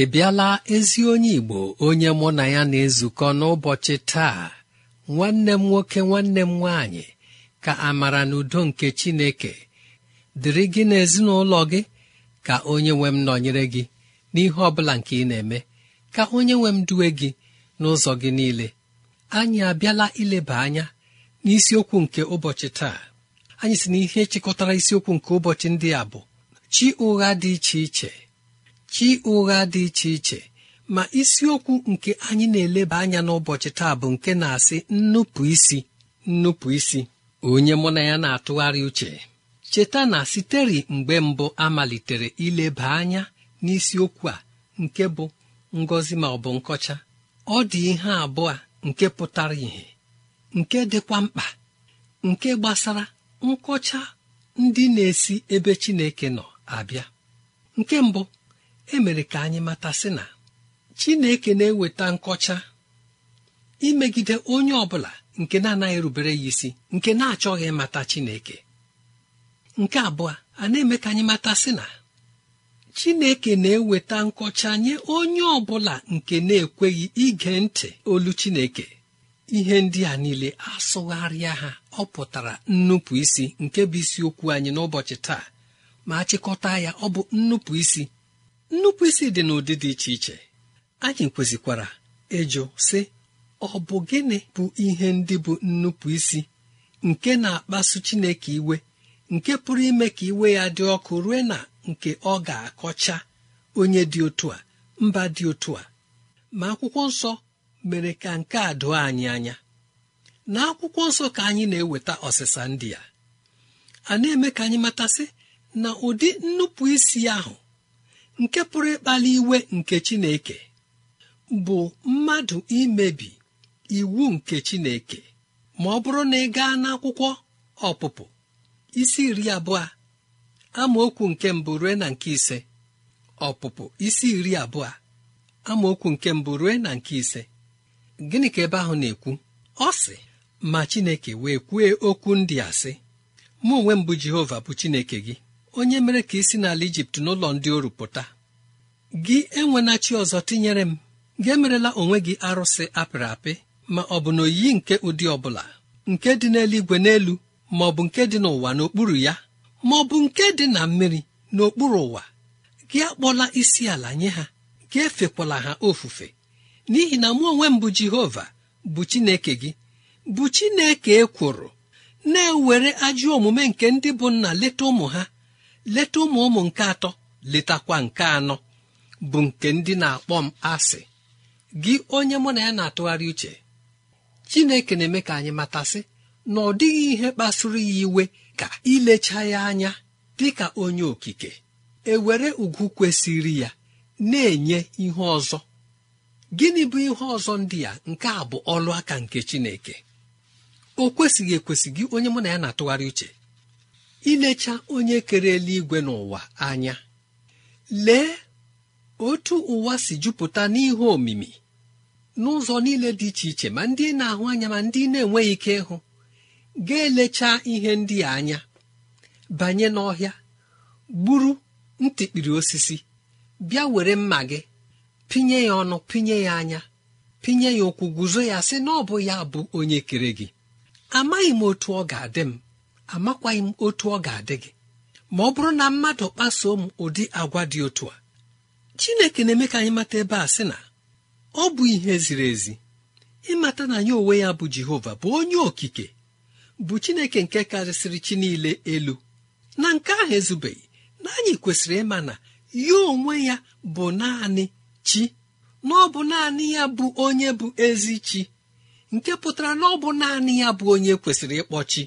ị bịala ezi onye Igbo onye mụ na ya na-ezukọ n'ụbọchị taa nwanne m nwoke nwanne m nwaanyị ka amara na udo nke Chineke dịrị gị n'ezinụlọ gị ka onye nwe m nọnyere gị n'ihe ọ bụla nke ị na-eme ka onye nwe m duwe gị n'ụzọ gị niile anyị abịala ileba anya n'isiokwu nke ụbọchị taa anyị si na ihe chịkọtara isiokwu nke ụbọchị ndị a bụ chi ụgha dị iche iche chi ụgha dị iche iche ma isiokwu nke anyị na-eleba anya n'ụbọchị taa bụ nke na-asị nnupụ isi nnupụ isi onye mụ na ya na-atụgharị uche cheta na siteri mgbe mbụ amalitere ileba anya n'isiokwu a nke bụ ngọzi ma ọ bụ nkọcha ọ dị ihe abụọ nke pụtara ìhè nke dịkwa mkpa nke gbasara nkọcha ndị na-esi ebe Chineke nọ abịa nke mbụ emere ka anyị mata si na chineke na-eweta nkọcha imegide onye ọbụla bụla nke na-anaghị rubere ya isi nke na-achọghị mata chineke nke abụọ a na-eme ka anyị mata sị na chineke na-eweta nkọcha nye onye ọbụla nke na-ekweghị ige ntị olu chineke ihe ndị a niile asụgharịa ha ọ pụtara nnupụ isi nke bụ isiokwu anyị n'ụbọchị taa ma chịkọta ya ọ bụ nnupụ isi nnupụisi dị n'ụdị dị iche iche anyị kwesịkwara ịjụ sị ọ bụ gịnị bụ ihe ndị bụ nnupụisi nke na-akpasu Chineke iwe nke pụrụ ime ka iwe ya dị ọkụ rue na nke ọ ga-akọcha onye dị otu a mba dị otu a ma akwụkwọ nsọ mere ka nke a doo anyị anya na akwụkwọ nsọ ka anyị na-eweta ọsịsa ndị a a na-eme ka anyị matasị na ụdị nnupụisi ahụ nke pụrụ ịkpali iwe nke chineke bụ mmadụ imebi iwu nke chineke ma ọ bụrụ na ị gaa n'akwụkwọ ọpụpụ isi iri abụọ amaokwu nke mbụ rue na nke ise ọpụpụ isi iri abụọ amaokwu nke mbụ rue na nke ise gịnị ka ebe ahụ na-ekwu ọ sị ma chineke wee kwue okwu ndị asị! sị mụ onwe mbụ jehova bụ chineke gị onye mere ka isi n'ala ijipt n'ụlọ ndị oru pụta gị enwena chi ọzọ tinyere m gị emerela onwe gị arụsị apịrị apị ma ọ bụ na oyiyi nke ụdị ọbụla nke dị n'eluigwe n'elu ma ọ bụ nke dị n'ụwa n'okpuru ya ma ọ bụ nke dị na mmiri n'okpuru ụwa gị akpọla isi ala nye ha gị efekwala ha ofufe n'ihi na mụ onwe m bụ jehova bụ chineke gị bụ chineke ekworo na-ewere ajọ omume nke ndị bụ nna leta ụmụ ha leta ụmụ ụmụ nke atọ letakwa nke anọ bụ nke ndị na-akpọ m asị gị onye mụ na ya na-atụgharị uche chineke na-eme ka anyị matasị na ọ dịghị ihe kpasuru ya iwe ka ilecha ya anya dị ka onye okike ewere ugwu kwesịrị ya na-enye ihe ọzọ gịnị bụ ihe ọzọ ndị ya nke a bụ ọlụ aka nke chineke o kwesịghị ekwesị gị onye mụ na ya na-atụgharị uche ilecha onye kere eluigwe n'ụwa anya lee otu ụwa si jupụta n'ihu omimi n'ụzọ niile dị iche iche ma ndị na-ahụ anya ma ndị na-enweghị ike ịhụ ga-elecha ihe ndị a anya banye n'ọhịa gburu ntịkpiri osisi bịa were mma gị pinye ya ọnụ pinye ya anya pinye ya ụkwụ guzo ya sị na ọ bụ ya bụ onye kere gị amaghị m otu ọ ga-adị m amakwaghị m otu ọ ga-adị gị ma ọ bụrụ na mmadụ kpasuo m ụdị agwa dị otu a chineke na-eme ka anyị mata ebe a sị na ọ bụ ihe ziri ezi ịmata na ya onwe ya bụ jehova bụ onye okike bụ chineke nke karịsịrị chi niile elu na nke ahụ ezubeghị na anyị kwesịrị ịma na ya onwe ya bụ naanị chi na ọ bụ naanị ya bụ onye bụ ezi chi nke pụtara na ọ bụ naanị ya bụ onye kwesịrị ịkpọ chi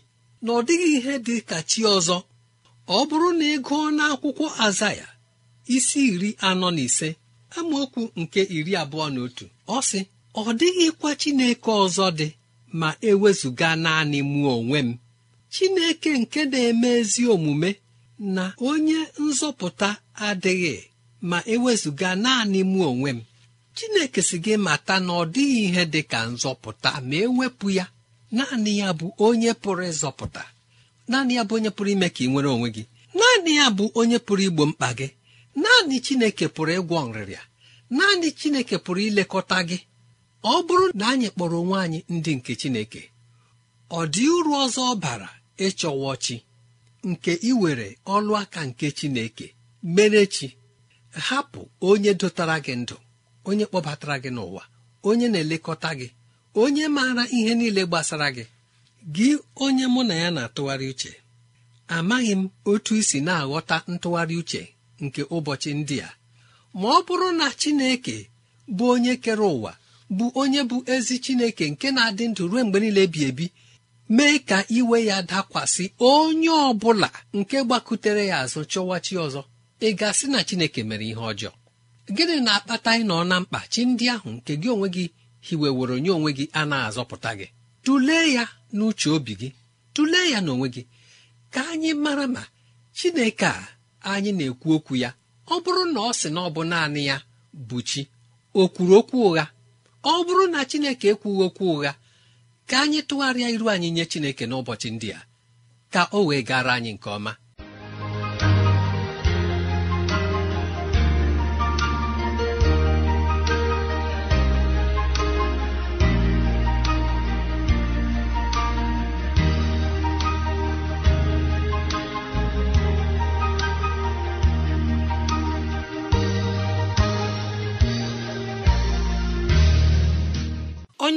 na ọ dịghị ihe dị ka chi ọzọ ọ bụrụ na ị gụọ n'akwụkwọ azaya isi iri anọ na ise amaokwu nke iri abụọ na otu ọ sị ọ dịghịkwa chineke ọzọ dị ma ewezụga naanị mụ onwe m chineke nke na-eme ezi omume na onye nzọpụta adịghị ma ewezụga naanị mụ onwe m chineke si gị mata na ọ dịghị ihe dị ka nzọpụta ma ewepụ ya naanị ya bụ onye pụrụ ịzọpụta naanị ya bụ onye pụrụ ime ka ị nwere onwe gị naanị ya bụ onye pụrụ igbo mkpa gị naanị chineke pụrụ ịgwọ nrịrịa naanị chineke pụrụ ilekọta gị ọ bụrụ na anyị kpọrọ onwe anyị ndị nke chineke ọ dị uru ọzọ ọ bara ịchọwa chi nke iwere ọlụ aka nke chineke mere chi hapụ onye dotara gị ndụ onye kpọbatara gị n'ụwa onye na-elekọta gị onye maara ihe niile gbasara gị gị onye mụ na ya na-atụgharị uche amaghị m otu isi na-aghọta ntụgharị uche nke ụbọchị ndị a ma ọ bụrụ na Chineke bụ onye kere ụwa bụ onye bụ ezi Chineke nke na-adị ndụ ruo mgbe niile bi ebi mee ka iwe ya dakwasị onye ọ bụla nke gbakutere ya azụ chọwa ọzọ ị gasị na Chineke mere ihe ọjọọ gịnị na-akpata ịnọ na mkpa chi ndị ahụ nke gị onwe gị hiweworo onye onwe gị a na-azọpụta gị tụlee ya n'uche obi gị tụlee ya n'onwe gị ka anyị mara ma chineke a anyị na-ekwu okwu ya ọ bụrụ na ọ sị na ọ bụ naanị ya bụ chi o kwuru okwu ụgha ọ bụrụ na chineke ekwughị okwu ụgha ka anyị tụgharịa iru anyị nye chineke n'ụbọchị ndị a ka o wee gara anyị nke ọma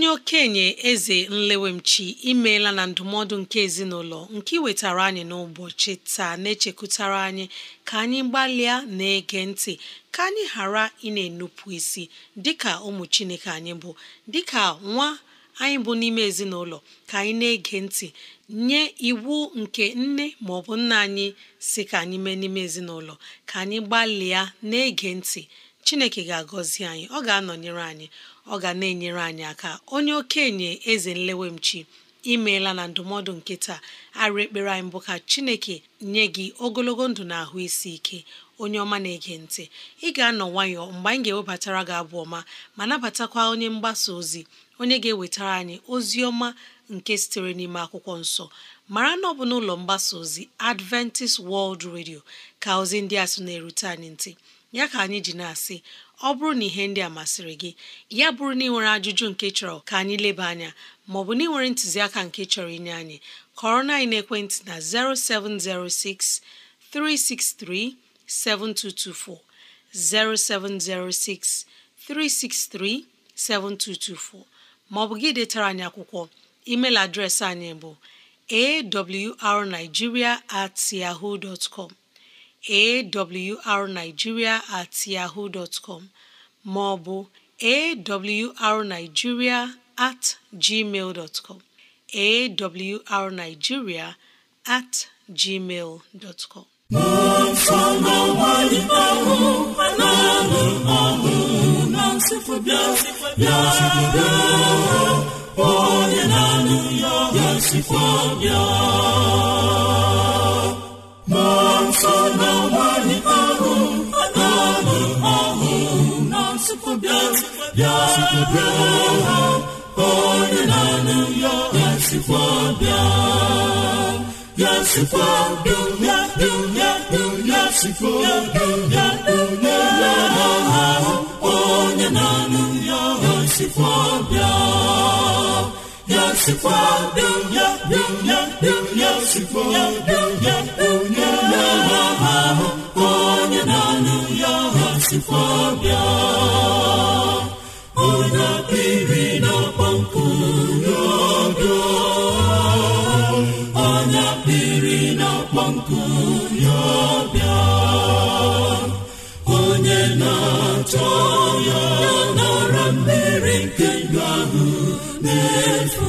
onye okenye eze nlewemchi imeela na ndụmọdụ nke ezinụlọ nke iwetara anyị n'ụbọchị taa na-echekwutara anyị ka anyị gbalịa na-ege ntị ka anyị ghara ị na-enupụ isi dịka ụmụ chineke anyị bụ dịka nwa anyị bụ n'ime ezinụlọ ka anyị na-ege ntị nye iwu nke nne ma bụ nna anyị si ka anyị mee n'ime ezinụlọ ka anyị gbalịa na-ege ntị chineke ga-agọzi anyị ọ ga-anọnyere anyị ọ ga na-enyere anyị aka onye okenye eze nlewemchi imeela na ndụmọdụ nke taa arụ ekpere anyị mbụ ka chineke nye gị ogologo ndụ na ahụ isi ike onye ọma na-ege ntị ị ga-anọ nwayọọ mgbe anyị ga-ewebatara gị abụ ọma ma nabatakwa onye mgbasa ozi onye ga-ewetara anyị ozi ọma nke sitere n'ime akwụkwọ nsọ mara na ọ bụ n'ụlọ mgbasa ozi Adventist World Radio ka ozi ndị a sị na-erute anyị ntị ya ka anyị ji na-asị ọ bụrụ na ihe ndị a masịrị gị ya bụrụ na ị nwere ajụjụ nke chọrọ ka anyị leba anya maọbụ na ị nwere ntụziaka nke chọrọ inye anyị kọrọ na ekwentị na 0706 363 7224 0706 363 7224 maọbụ gị detara anyị akwụkwọ email adreesị anyị bụ awrnigeria at yahoo dot com awrnigeria at yahoo dot com ma ọ awrnigeria at gmail dot com awrnigeria at gmail dot com onye na-anụ ya ya ya sikwa onye na-anụ ya ya sikwa bịa ya sikwa bịa bịa bịa sikwa bịa bịa ahụ onye ya ya sikwa bịa ya sikwa bịa bịa onye na ya ya sikwa bịa chọ ya n'ọra mmiri nke ndụ ahụ na-efu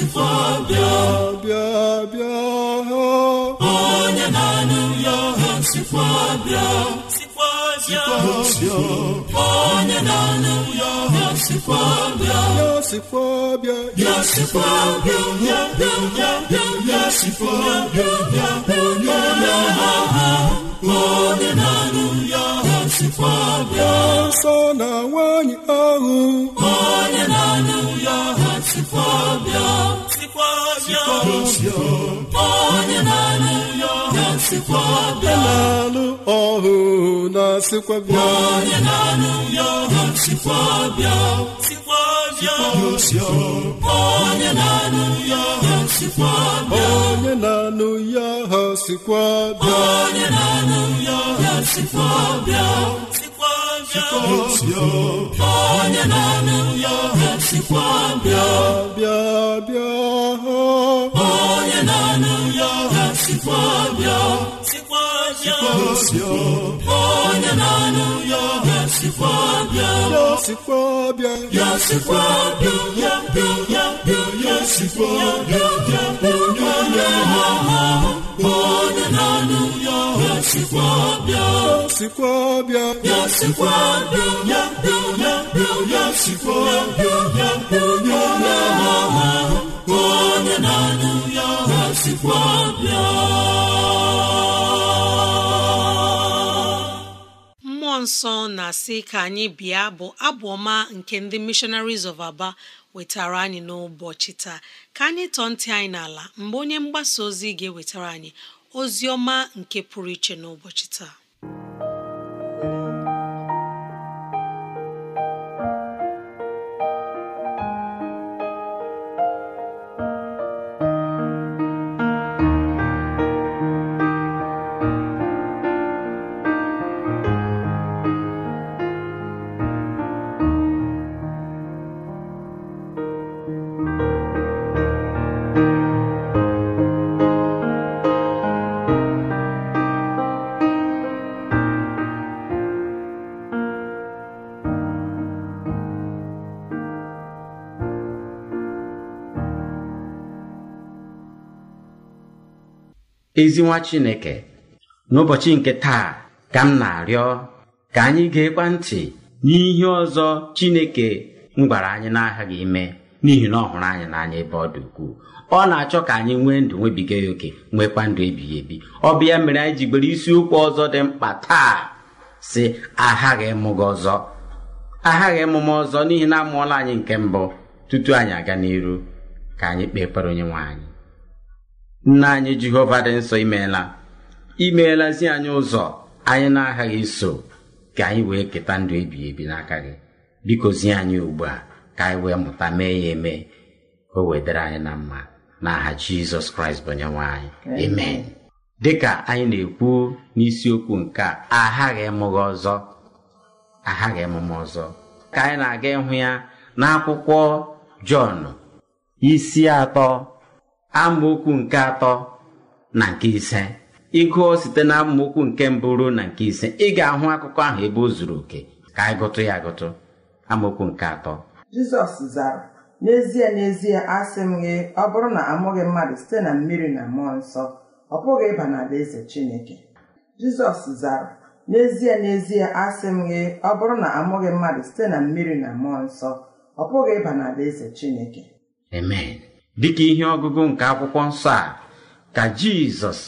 Pọtịfa bịa bịa bịa onye na-anụ ya ọha sikwa bịa onye na-anụ ya ọha sikwa bịa ya sikwa bịa ya bịa bịa bịa ya onye na anụ ya bịa ahụ onye sikwa na-anụ ọhụ na Sikwabịa. onye na-anụ ya Sikwabịa onye na-anụ ya onye na-anụ ya onye na-anụ ya onye na-anụ ya esikwa bịa bịa bịa onye na-anụ ya bịa onye na-anụ ya bịa ya sikwa bịa ya sikwa bịa mmụọ nsọ na-asị ka anyị bịa bụ abụ ọma nke ndị missionaries of Aba wetara anyị n'ụbọchị taa ka anyị tọọ ntị anyị n'ala mgbe onye mgbasa ozi ga-ewetara anyị ozi ọma nke pụrụ iche n'ụbọchị taa ezi nwa chineke n'ụbọchị nke taa ka m na-arịọ ka anyị ga-ekwa ntị n'ihe ọzọ chineke m gwara anyị n'aghaghị ime n'ihi na ọ hụrụ anyị n'anya ebe ọ dị ukwuu ọ na-achọ ka anyị nwee ndụ nwebiga ya oke nwekwa ndụ ebighị ebi ọ bụ ya mere anyị ji gbere isiokwu ọzọ dị mkpa taa si aghaghị emume ọzọ aghaghị ọzọ n'ihi na amụọla anyị nke mbụ tutu anyị aga n'iru ka anyị kpee ekpere onye nwe anyị nna anyị jehova dị nsọ imeela imeelazi anyị ụzọ anyị na-aghaghị iso ka anyị wee keta ndụ ebighị ebi n'aka gị biko zi anyị ugbu a ka anyị wee mụta mee ya eme ka o wedere anyị na mma n'aha jizọs kraịst bụ onyenwe anyị amen dịka anyị na-ekwu n'isiokwu nke a aghaghị ịmụghị ọzọ aghaghị emume ọzọ ka anyị na-aga ịhụ ya n'akwụkwọ jọn isi atọ amaokwu nke atọ na nke ise ịgụọ site na amaokwu nke mbụ ruo na nke ise ị ga-ahụ akụkọ ahụ ebe o zuru oke ka anyị gụtụ ya agụtụ amaokwu nke atọ jizọs zara n'ezie n'ezie asị m gị ọ bụrụ na amụghị mmadụ site na mmiri na mmụọ nsọ ọ bụghị ịba na-adị n'alaeze chineke jizọs zara n'ezie n'ezie asị m gị ọ bụrụ na amụghị mmadụ site na mmiri na mmụọ nsọ ọ bụghị ịba na-adị n'alaeze chineke amen ka ihe ọgụgụ nke akwụkwọ nsọ a ka jizọs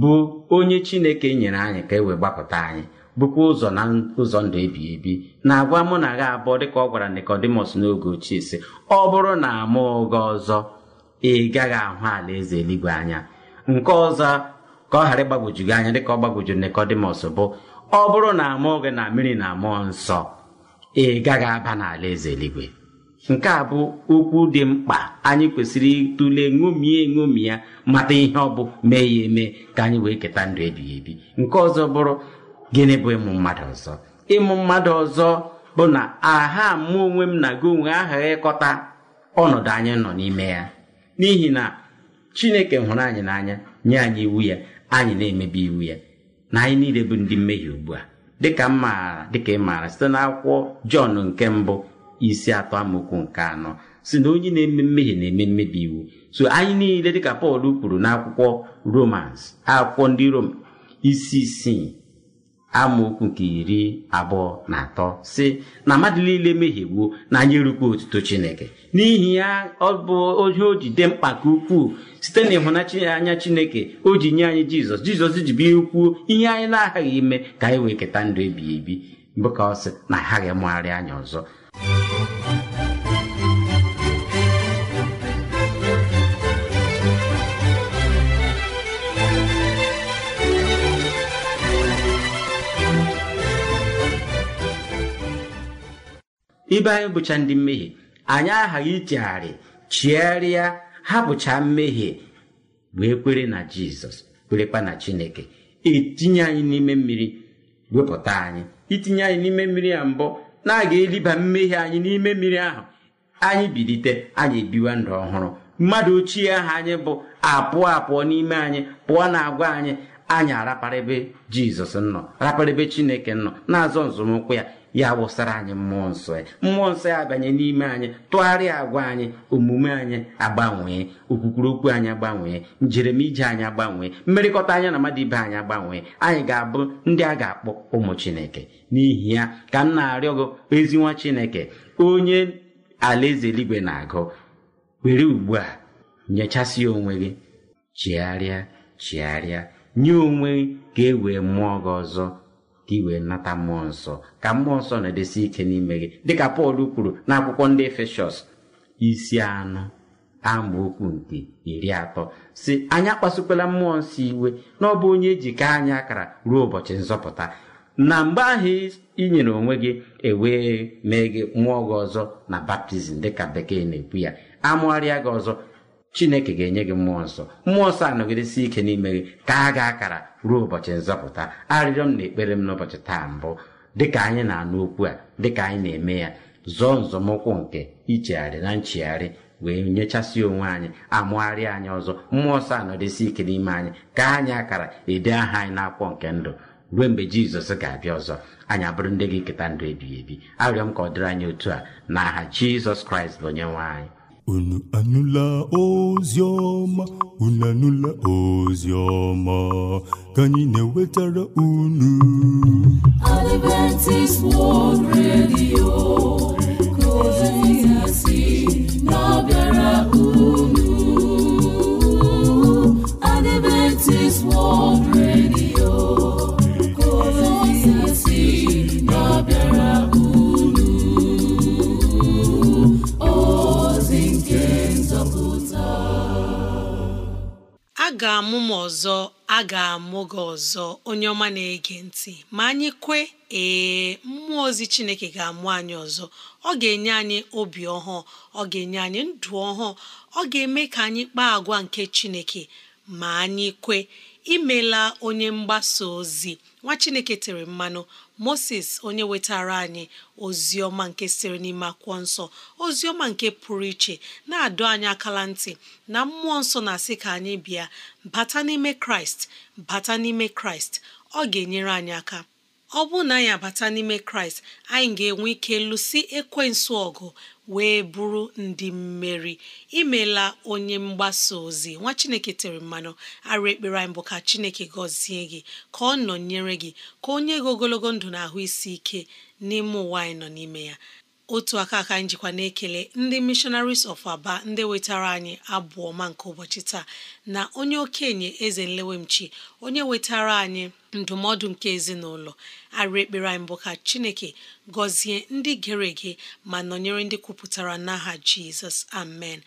bụ onye chineke nyere anyị ka e wee gbapụta anyị bụkwa ụzọ na ụzọ ndụ ebi ebi na-agwa mụ na gha abụọ dịka ọ gwara Nikọdimọs n'oge ochie sị ọ bụrụ na mụ gị ọzọ ị gaghị ahụ ala eze eluigwe anya nke ọzọ ka ọ ghara ịgbagwoju gị anya dịka ọ gbagwoju Nikọdimọs bụ ọ bụrụ na amụọ gị na mmiri na mmụọ nsọ ị gaghị aba n'ala eze eluigwe nke a bụ okwu dị mkpa anyị kwesịrị ịtụle ṅomie ṅomi ya mata ihe ọ bụ mee ya eme ka anyị wee keta ndụ ebighị ebi nke ọzọ bụrụ gịnị bụ ịmụ mmadụ ọzọ ịmụ mmadụ ọzọ bụ na aha mụ onwe m na gị onwe aha ịkọta ọnọdụ anyị nọ n'ime ya n'ihi na chineke hụrụ anyị n'anya nye anyị iwu ya anyị na-emebi iwu ya na anyị niile bụ ndị mmehie ugbu a dịka m maara dịka ị maara site n'akwụkwọ jọn nke mbụ isi atọ amaokwu nke anọ si na onye na-eme mmehie na-eme mmebi iwu so anyị niile dịka pọl kwuru n'akwụkwọ romans akwụkwọ ndị rom isi isii amaokwu nke iri abụọ na atọ si na mmadụ niile mehiegbuo na anyị erukwa otuto chineke n'ihi ya ọ bụ ohe o ji dị mkpa ka ukwuu site na ịhụnanya chineke o ji nye anyị jizọs jizọs ji bi kwuo ihe anyị na-aghaghị ime ka anyị wee keta ndụ ebighị ebi bụ ka ọ sị na aghaghị mụgharị anyị ọzọ ibe anyị bụcha ndị mmehie anyị aghaghị ichegharị chigharịa bụcha mmehie wee kwere na jizọs kwerekwa na chineke etinye anyị n'ime mmiri wepụta anyị itinye e anyị n'ime mmiri ya mbụ na-aga eliba mmehie anyị n'ime mmiri ahụ anyị bilite anyị ebiwa ndụ ọhụrụ mmadụ ochie ahụ anyị bụ apụọ apụọ n'ime anyị pụọ na agwa anyị anyị araparịbe jizọs nọ raparịbe chineke nọ na-azọ nzọmụkwụ ya ya wụsara anyị mmụọ nsọ ya e. mmụọ nsọ ya e abanye n'ime anyị tụgharịa agwa anyị omume anyị agbanwee okwukwuru okwu anyị agbanwee njeremije anyị agbanwee mmerịkọta anya na mmadụ ibe anyị agbanwee anyị ga-abụ ndị a ga-akpọ ụmụ chineke n'ihi ya ka m na-arịọ gị ezi nwa chineke onye alaeze eluigwe na-agụ were ugbu a nyechasị onwe gị chigharịa chigharịa nye onwe gị ka e wee mụọ gị ọzọ ka ị wee nata mmụọ nsọ ka mmụọ nsọ na-edesi ike n'ime gị dịka pọl kwuru n'akwụkwọ ndị efeshọs isi anụ. anọ okwu nke iri atọ si anyị akpasukwala mmụọ nsọ iwe na ọ bụ onye ejike anyị akara ruo ụbọchị nzọpụta na mgbe ahụ i nyere onwe gị ewee mee gị mmụọ gị ọzọ na baptizim dịka bekee na-ekwu ya amụgharịa gị ọzọ chineke ga-enye gị mmụọ nsọ mmụọ nsọ anọgidesi ike n'ime gị ka a ga akara ruo ụbọchị nzọpụta arịrịọ m na ekpere m n'ụbọchị taa mbụ dịka anyị na-anụ okwu a dịka anyị na-eme ya zọọ nzọmụkwụ nke ichegharị na nchegharị wee nyechasị onwe anyị amụgharị anyị ọzọ mmụọ nsọ anọdesi ike n'ime anyị ka anyị akara ede aha anyị n'akwụkwọ nke ndụ ruo mgbe jizọs ga-abịa ọzọ anyị abụrụ ndị gị keta ndụ ebighị ebi arịọ m ka ọ dịrị anyị otu a na aha jizọs kraịst bụ onye nwe anyị unu anụla ozi ọma unu anụla ozi ọma ka anyị na-ewetara unu Adventist World Radio ga-amụ m ọzọ a ga-amụ gị ọzọ onye ọma na-ege ntị ma anyị kwe ee mmụọ ozi Chineke ga-amụ anyị ọzọ ọ ga-enye anyị obi ọhụụ ọ ga-enye anyị ndụ ọhụụ ọ ga-eme ka anyị kpaa agwa nke Chineke ma anyị kwe imela onye mgbasa ozi nwa chineke tere mmanụ moses onye wetara anyị ozi ọma nke siri n'ime akwụkwọ nsọ ozi ọma nke pụrụ iche na-adọ anyị akala ntị na mmụọ nsọ na-asị ka anyị bịa bata n'ime kraịst bata n'ime kraịst ọ ga-enyere anyị aka ọ bụrụ na anyị abata n'ime kraịst anyị ga-enwe ike lụsi ekwensu ọgụ wee bụrụ ndị mmeri imela onye mgbasa ozi nwa chineke tere mmanụ arụ ekpere anyị bụ ka chineke gọzie gị ka ọ nọnyere gị ka onye gị ogologo ndụ na ahụ isi ike n'ime ụwa anyị nọ n'ime ya otu aka aka njikwa na-ekele ndị missionaries of aba ndị wetara anyị abụọ ọma nke ụbọchị taa na onye okenye eze nlewemchi onye wetara anyị ndụmọdụ nke ezinụlọ arị ekpere anyị mbụ ka chineke gọzie ndị gere ege ma nọnyere ndị kwupụtara n'aha jizọs amen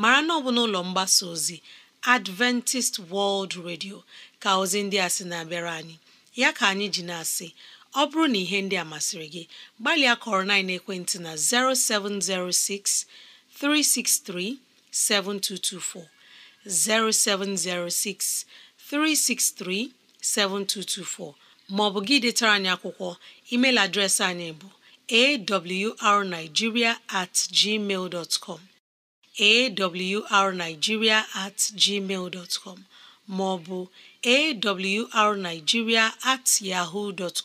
mara na ọ bụ n'ụlọ mgbasa ozi adventist world radio ka ozi ndị a sị na-abịara anyị ya ka anyị ji na-asị ọ bụrụ na ihe ndị a masịrị gị gbalịa kọrọ na ekwentị na 0706 363 7224 0706 363 7224 maọbụ gị detara anyị akwụkwọ email adreesị anyị bụ awrnigeria at gmail dot com awrnigeria at gmail dot com ma ọ bụ awrnigeria at yahoo dot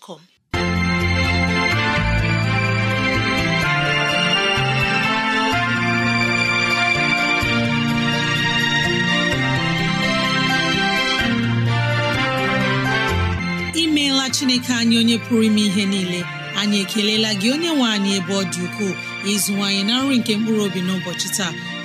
imeela chineke anyị onye pụrụ ime ihe niile anyị ekelela gị onye nwe anyị ebe ọ dị ukwuu ịzụwanyị na nri nke mkpụrụ obi n'ụbọchị taa